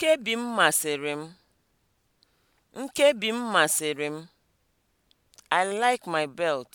Nkebi m masịrị m. Nkebi m masịrị m. I like my belt.